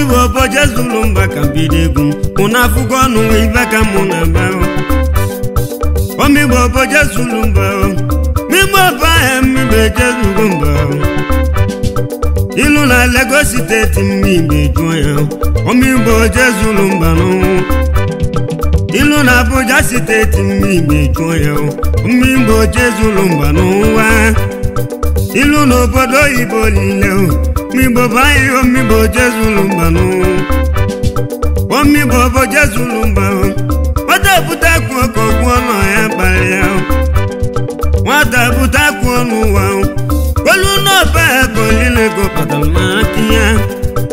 imi bụ oboje zulu mba ka bido egwu m mụna afụgo ọnụ ibe ka mụ na be omigbo oboje zulu mba migbo bụ ahịa mmigbo ejezugo mba ịlụ na Lagos steeti mmiri ejuo ya omigbo oje zulu mba n'ọnwụ ilu na Abuja steeti mmiri ejuo ya omigbo oje zulu mba n'ụwa ịlụ na obodo oyibo niile migbo bụ ahịhịa omigbo jezulu mbanụ omigbo bụ jezulu mbanụ nwata bute akpụ ọkọ gwụọ ya kpara ya nwata bute ọnụ ụwa olu n'ọba ya ka ya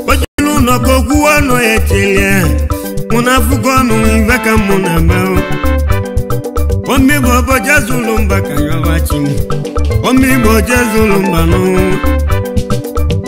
ojulu ụlọ ka ọnụ ya echelia mụ na afụgo ọnụ ibe ka mụ na ama bụ mba ka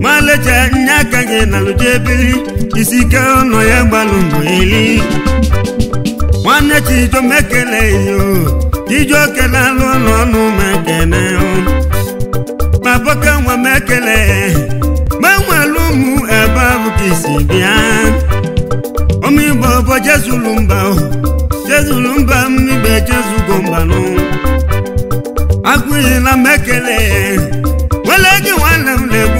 nwalecha nye aka gị na lụjebiri isi ike ụlọ ya gbalụ eli. nwanne chijomekelei ijuokele alụ ụlọ ọnụ ma ekene ma boke nwa m ekele ma nwere ụmụ ebe a isi bịa ụmụ igbo bụ jezulu mba jezulu mba m ibe jezugo mbanụ agụghịla m ekele nwere gị nwanne m na-egbu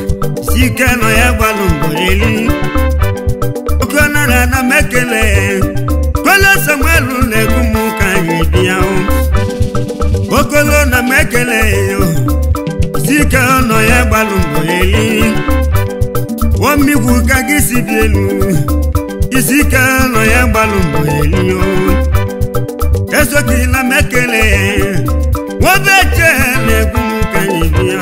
ike nọ ya gbalụ mgborili okona na ana m ekele kolo samuelu na-egbu m ka anyị dị ya okolo na mekele ekele si ike nọ ya gbalụ mgborili wọmmigwu ka gị si dị elu isi ike nọ ya gbalụ mgborili esokila m ekele nwobeche na-egbu m ka anyị dị ya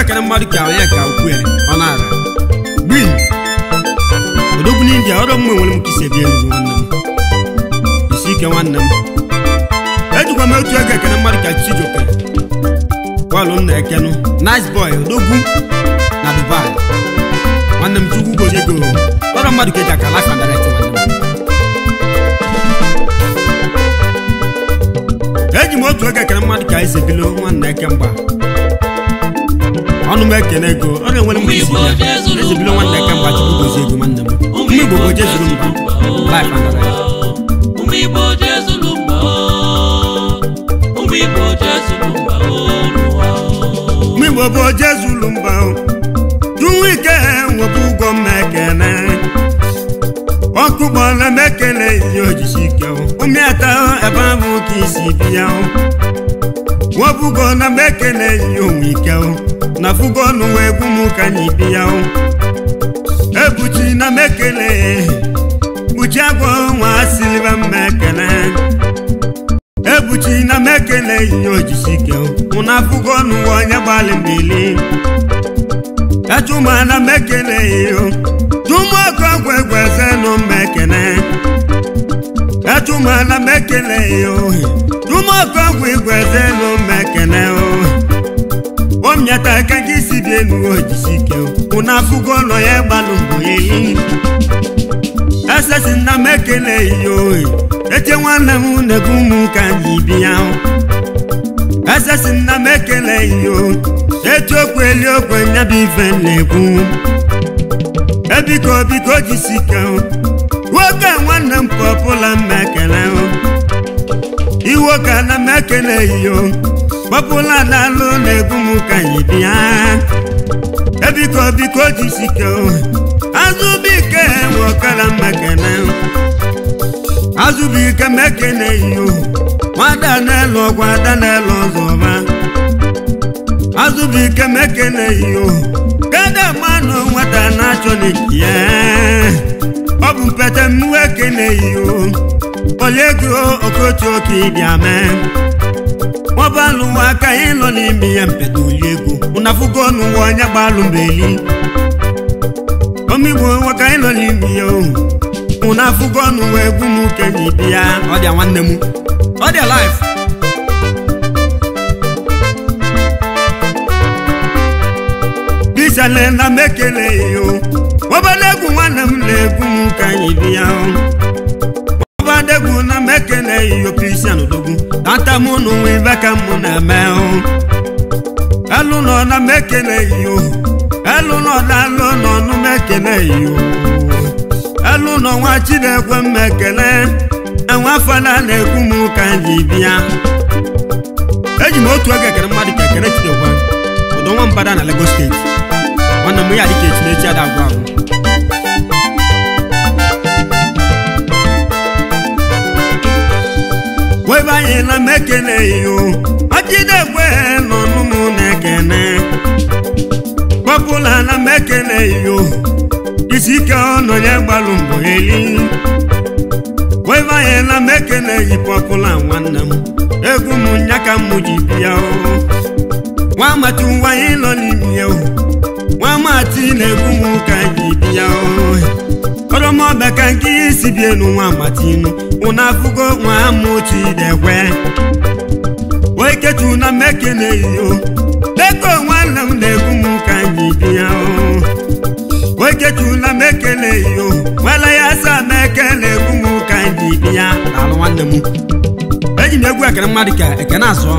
ekele mmadụ ka onye ka ukwu ya ọ na-ara gbii odogwu n'india ọrụ mma nwere m ka ebi enyi nwanne m isi ike nwanne m ejikwa m otu ego ekele mmadụ ka chijioke bọọlụ nna ekenụ nice boy odogwu na dubai nwanne m chukwu gozie ọrụ mmadụ ka eji aka lafa eji m otu ego ekele mmadụ ka nwanne eke mgba ọnụ m ekene ego ọ ga-enwere mgbe isi ya ezi nwanne ka mgba chukwu gozi ego nwanne m ụmụ igbo bụ jezuru mbụ ụmụ igbo bụ jezuru mbụ jụwa ike nwepụ ụgwọ m ekene ọkụ gbọla m ekele ihe ojisi ike ụmụ ata ebe ahụ ka isi bi ya nwabugo na m ekele ya onwe ike na fugo n'ụwa gwu m ka anyị bi ya ebuchi na m ekele buchi agwa nwa siliva m ekele ebuchi na m ekele ihe ojisi ike mụ na fugo n'ụwa onye gbalị mbili kachuma na m ekele ihe chuma ọkụ ọgwụ egwu eze nụ m ekele ka chumana m ekele ya ohi chumọkọgwụ igwe zelu ohi omnyata aka dị elu ojisike ụna afụgo ụlọ ya gbalụ mbụ ehihi esesi na m ekele ya ohi eche nwanne na ụmụ ka anyị ya na nna m ekele ya okwe nyabụ ife na-ekwu ebiko biko jisike nwoke nwanne m pọpụla m ekele iwe ka na m ekele iyo pọpụla daalụ na-egbu m ka anyị bịa ebiko biko jisike azụbike nwe ọkara m ekele azụbike m ekele iyo nwada na-elu ọgwa ada na-elu ọzọ ọma azụbike m ekele iyo kedụ mmanụ nwata na-achọ n'ike ọ bụ mpete m ekeneghị oliego okotu oke ịbịa mee nwabalụ nwa aka anyị nọ n'ime ya mpete oliego ụnafugo n'ụwa onye gbalụ mbeli omigbo nwaka anyị nọ n'ime ya ụnafugo n'ụwa egwu m uke na ya ọ dịa nwanne m ọ dịa life bisalena m ekeleghị ọbada nwanne m na-egwu m ka anyị bịa ọbada egwu na m ekele iyopisan odogwu ata m na onwe ibe ka m na-eme elu nọ na m ekele iyo elu nọ na alụ nọ nụ m ekele iyo elu nọ nwa chinekwe m ekele enwe afọla na-egwu m ka anyị bịa eji m otu oge ekele mmadụ ka ekele chidekwa ọdọ nwa mbada na Lagos steeti nwanne mụ ya dị ka echinechi ada agwa agwa webe anyị na m ekeleghị o ọjidegwe na-ekene kpọpụla na m ekeleghị isi ike ọnọ ya gbalụ na m ekeleghị pọpụla nwanne m egwu m nya ka ji bịa nwa amatu nọ n'ime ya ohu nwa mati na-egbu m ka anyị bi ya ọrọmọbịa ka nke ihe si bie nu nwa matinu ụna afụgo nwa amụtu idekwe wee ketu na mmeke na-eyiyo deko nwanne m na-egbu m ka anyị bi ya wee ketu na mmeke na-eyiyo nwala ya sa m'eke na-egbu m ka anyị bi ya alụ nwanne m eji m egwu ekene mmadụ ka ekene azụọ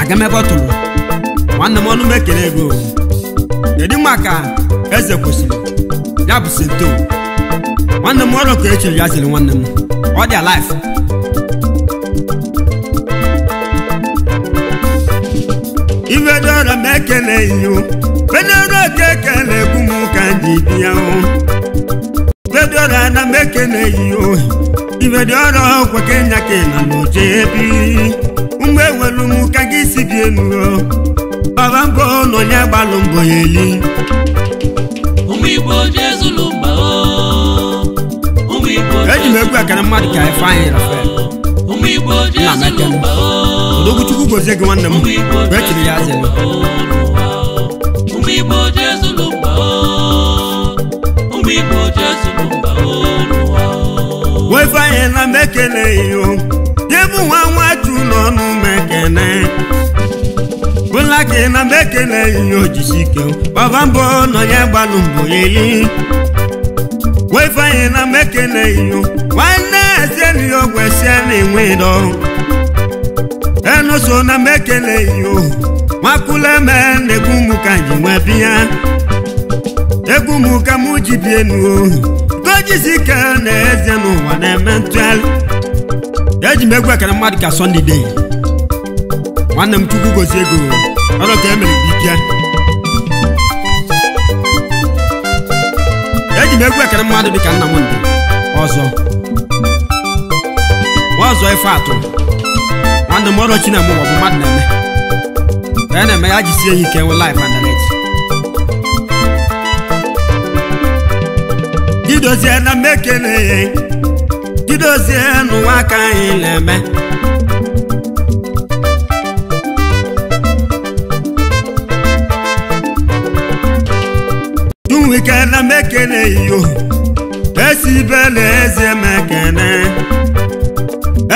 aga m ebe ọ tụrụ nwanne m ọnụ m ego kedu ka eze kwesịrị ya bụ sento nwanne m ọrụ ka echiri ya ziri nwanne m ọ dị alive ivedora m ekele iyo venero ka ekele egwu m ka ndị bịa ivedora na m ekele iyo ivedora ọkwa kenya ka na n'oche ebi ụmụ nwere m ka gị si bie nuo baba bụ na onye gbalụ mbọ ya eli igbo jezulu eji m egwu ekene mmadụ ka ifeanyị rafael nna m ekene odoguchukwu gozie gị nwanne m mgbe echiri ya zere nwefeanyị na m ekele ya ihe bụ nwa nwatu n'ọnụ mekene. bụla gị na mbe ekeleghị ya ojisi ike gbaba mbọ nọ ya gbalụ mbọ eli wefanye na mbe ekeleghị ya nwanne ezieniya ọgwụ na-enwe dọ enuso na mbe ekeleghị ya nwakuleme na-egbu mụ ka nji nwee biya egwu mụ ka mụ ji bie nu ojisi ike na eze n'ụwa na-eme ntụgharị eji m egwu ekele mmadụ ka sọndide nwanne m chukwu gozie ego ọrụ ka emere ike eji m egwu ekere mmadụ dịka nna m ndị ọzọ ọzọ ife atụ nwanne m ọrụ china m ọ bụ mmadụ na-eme ka ya e na-eme ya jisie ya ike nwe laif internet didozie na mmekene didozie n'ụwa aka anyị na-eme ekele m ekele iyo esi bela eze m ekene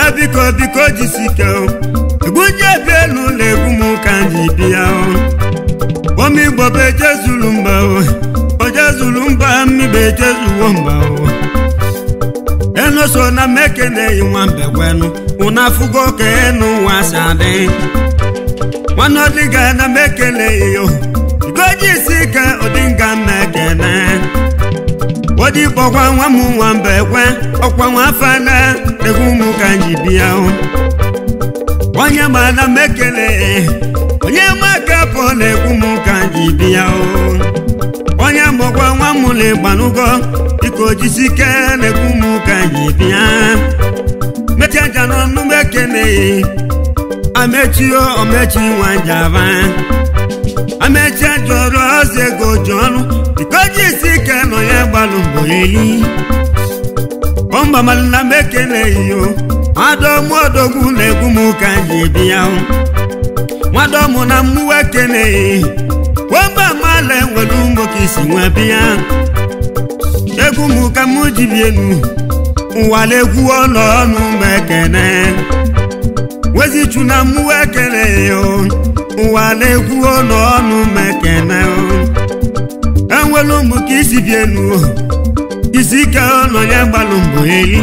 ebiko biko jisike egwujebe n'ụlọ egwu m ka ji bịa omigbo bụ ejezulu mba zulu mba mmibe ejezuwo mba enu so na m ekeneghị nwambe gwenu ụna afụgo ka enu nwa si adị nwanne ọdịga na m yi yo ugoji isi ka ụdịnga mmekene odikpọkwa nwa m nwa mba ekwe ọkwa nwa afọ na egwu ụmụ bịa onye mana m ekele onye maka pụ na egwu m ka nji bịa onye mụkwa nwa m na ịgbanugo dịka ojisi ike na egwu m ka nji bịa mechaja n'ọnụ m ekeneghị amechio omechi nwa njaba. amecha jụrụ ọzọ ego ju ọnụ dikoji isi ike nọ ya gbalụ mbọ eli ọmbamalina m ekeleghị o nwadomodogwu na-egwu m ka ji bi ya mụ na mmụọ ekeleghị wamba mala enwere ụmụ ka isi nwa bịa egwu m ka m ji bi elu ụwa na-egwu ọnụ ọnụ m ekene wezichu na mmụọ ekeleghị o ụwa na-ekwu ọnụ ọnụ mekene enwere ụmụ ka isi bie n'uo isi ike ọnụ ya gbalụ mbụ eli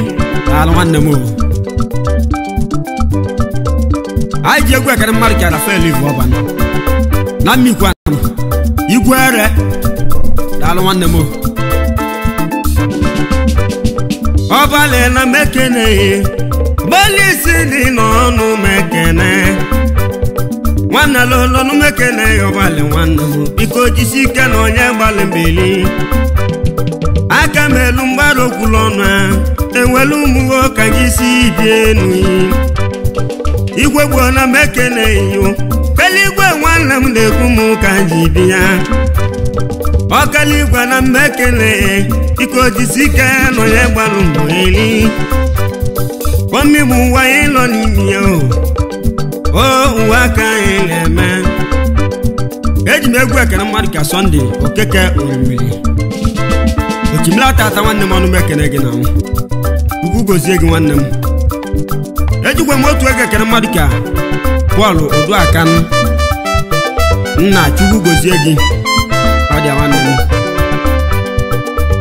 ala nwanne m anyị ji egwu ekere mmadụ kara fel ivu ọban na mmikwa igwe ere daalụ nwanne m ọbalị na mekene gbalị isi dị n'ọnụ mekene nwanne alụlọnụ m ekele ya ọgbalị nwanne m biko jisi ike na onye gbalị mbili aka m elu mgbaru okwulu ọnụ a ewelu ụmụwo ka anyị si bie enu igwe gbuola m ekele yo eluigwe nwanne m na-ekwu m ka m ji bi ya ọkaligwe na m ekele biko jisi ike na onye gbalụ mbili kpọmmi bụ nwa ịlọ n'ime ya o uwe aka anyị na-eme eji m egwu ekene mmadụ ka sọnde okeke orumiri ochimila tata nwanne m ọnụ m ekene gị na m ugwu gozie gị nwanne m ejikwa m otu ego ekene mmadụ ka bọọlụ oduaka nna chukwu gozie gị ọ dị nwanne m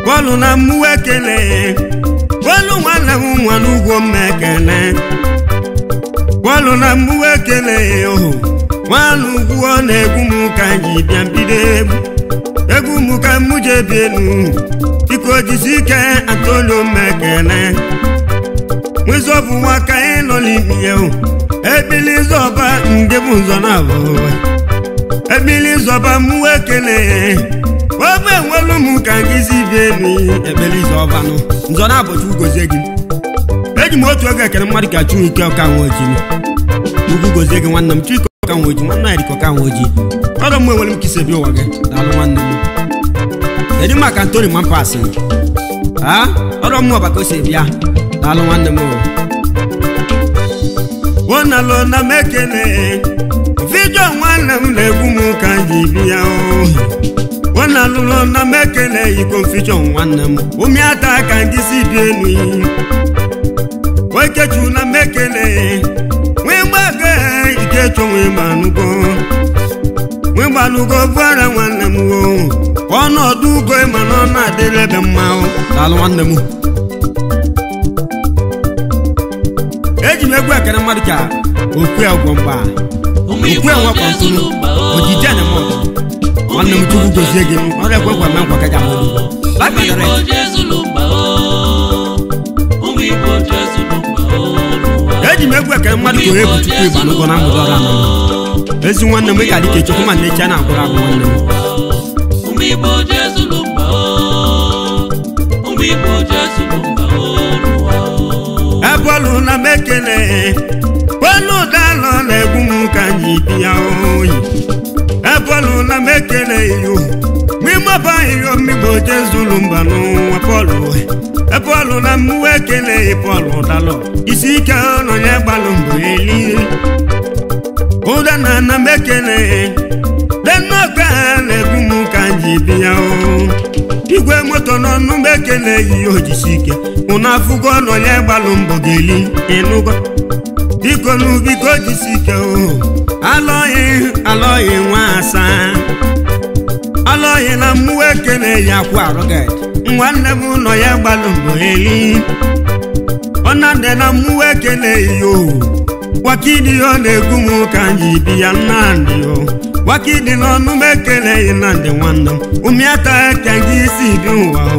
bọọlụ na mmụọ ekele bọọlụ nwanne m nwa n'ugwo m gwanụ na mgbuwe ekele ya ohu nwanụ ugwu ọ na-egwu anyị bịa mbido egwu egwu m ike atolu ndị na abụwa ebili zọba mụwe ekele m ka nzọ na abụcha eji m otu oge ekere mmadụ ka ike Chuike Okanwoji ugwu gozie gị nwanne m Chuike Okanwoji nwanne ya dịka Okanwoji ọrụ m enwere m ka isebi ụwa gị daalụ nwanne m kedu maka Antoni Mampasi a ọrụ m ọba ka o si bịa daalụ nwanne m ona lona mekele vidio nwanne m na-egbu m ka ji bịa ona lona mekele iko vidio nwanne m ụmịata ka ndị si bịa elu nwoke juru na mmekele nwee mgbago ikecho nwee nwanne m wo ka na ebe eji e m egwu ka okwe okwe ojije ekwe eji m egwu eke mmadụ gụrụ egwu chukwu igba n'ụgwọ na mgbede ọrụ anọ ezi nwanne m ịka dịka echekwu ma nnechi a na-akwụrụ agwụ nwanne m ebe na m ekele kwenu ụdalụ na-egbu m ka anyị bịa oyi ebe na m ekele iyo mmimọba ahịrịo mmigbo jezulu mba n'ụwa pọlụ epọlụ na mmụọ ekeleghị pọlụ dalụ isi ike ọnụ ya gbalụ mgbe eli ụda na ana m ekeleghị denọkpe ha na-egbu m igwe moto n'ọnụ m ekeleghị ojisi ike ụnụ afụgo ọnụ ya gbalụ mbọ ga-eli n'ubiko jisi ike o alọghị alọghị nwa asaa alọghị na mmụọ ekeleghị akwụ arụgaghị nwanne m nọ ya gbalụ mgbe eli ọnande na mmụọ ekele iyo wakidi ọ na-egwu m ka anyị bi ya nnandị o wakidi n'ọnụ m ekeleghị nnandị nwanne m ụmịata eke gị isi dị ụwa o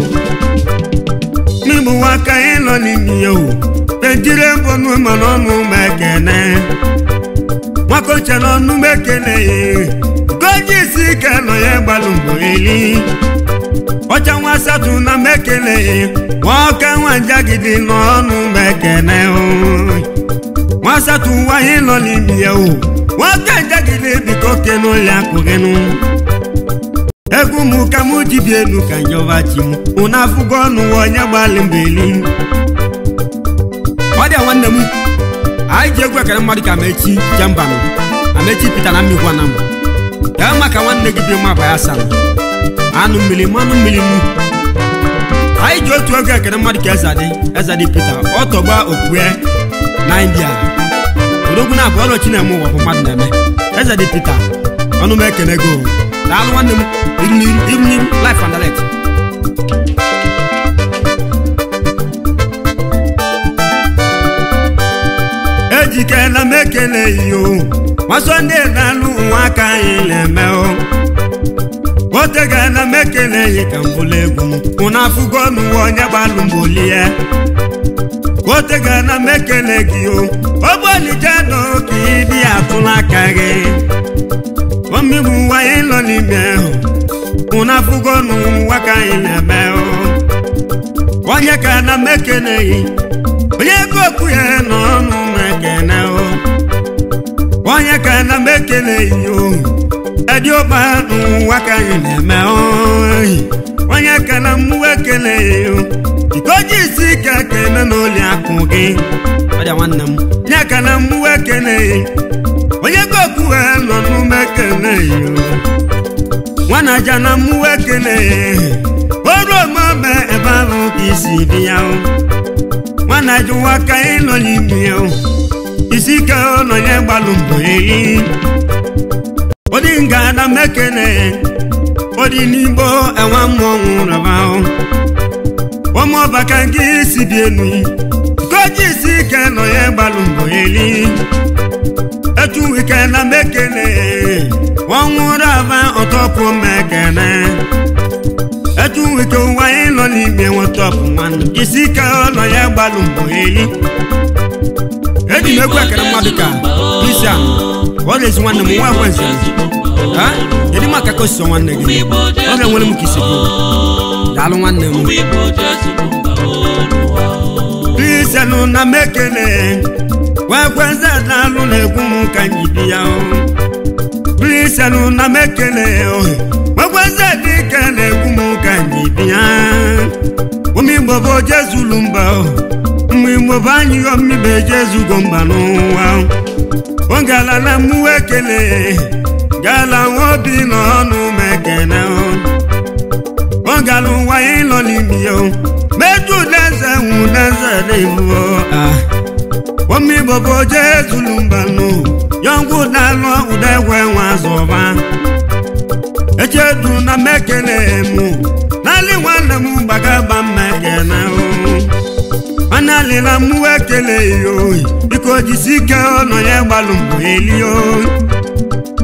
n'igbu nwaka ịnọ n'ime ya o pejiri mbọnụ ma n'ọnụ m ekene nwaka oche n'ọnụ m ekeleghị goji isi ike nọ ya gbalụ mgbe eli ọcha nwa asatọ na mekele nwoke nwajagidi n'ọnụ mekene nwa asatọ nwaanyị nọ n'ime ya o nwoke njagide biko kenu ya kụgenu egwu m ka m jibi elu ka njọba chi m ụna afụgo ọnụ onye gbalị mbeli ọ dị nwanne m anyị ji egwu ekere mmadụ ka amechi jembanụ amechi pita na mmikwa na m gaa ka nwanne gị bi mma bụ ya sara anụ mmiri mmanụ mmiri m anyị ji otu oge ekene mmadụ ka Ezadi Ezadi Peter ọ tọgba okpukpe na India odogwu na abụ ọrụ Chineke ụwa bụ mmadụ na-eme Ezadi Peter ọnụ m ekene go daalụ nwanne m iruniru life and direct ejikela m ekele iyo masọ ndị na-alụ nwa aka anyị na-eme otegana m ekeleghị ka mbụlụ egwu mụna afụgo n'ụwa onye gbalụ mbụli ya otegana m ekele gị o ogbolijeno ka ịdị atụla aka gị omegbu ụwa anyị nọ n'ime ahụ mụna afụgo n'ụwa ka anyị na-eme onye ka na m ekeleghị onye ego okwu ya n'ọnụ na-ekene onye ka na m ekeleghị ohu edioba n'ụwa nwaka anyị na-eme oyi onye akụ gị nye kele mmụọ ekele onye goku ha nọ ekele ya nwana na mmụọ ya oru ebe isi dị o. nwana aja ụwa ka anyị nọ n'ime ya isi ike ụlọ odinga na mekene odinigbo enwe mmọnwụ rabahụ ụmụọbaka gị si bienu koji isi ike nọ ya gbalụ mbọ eli etu ike na mekene ọnwụ rava ọtọpụ mekene etu ike ụwa ịnọ n'ime nwetọpụ nwanne isi ya gbalụ mbọ eli kedu maka ka osi nwanne gị oge nwere m na mekele ka bi na mekele m bụ gala nwobi n'ọnụ mekene ọ gara ụwa ịlọ n'imi ya meju n'eze nwụ n'eze n'ihu omi bobo je ezulumbanụ yọngwụ dalụ udegwe nwa zọba echedu na mekene mụ n'ali nwanne m gbagaba mmekene mana lila mụ ekele ya oyi biko jisi ike ọnọ ya gbalụ mbụ elio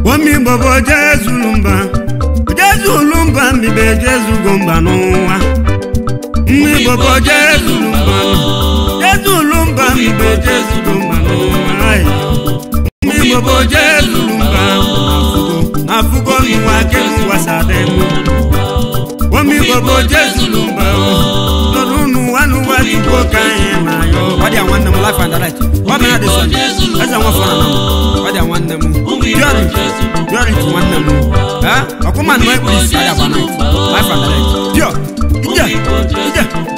omi igbo bụ jezulumba jezulumba mbibe jezugo mba n'ụwa nwa igbo bụ jezulumba jezulumba mbibe jezugo mba n'ụwa nwa igbo bụ jezulumba afụgo n'ụwa keziwasadem omi igbo bụ jezulumba nọdụ n'ụwa n'ụwa dịkwo ka anyị na ya ọ dị nwanne m life and light ọ dị na dị sọ eze nwa fọrọ marry marry